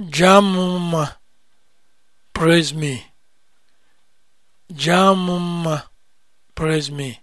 Jamma, praise me. Jamma, praise me.